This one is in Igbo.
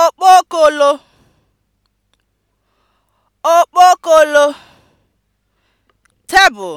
okpokolo okpokolo (tebụl)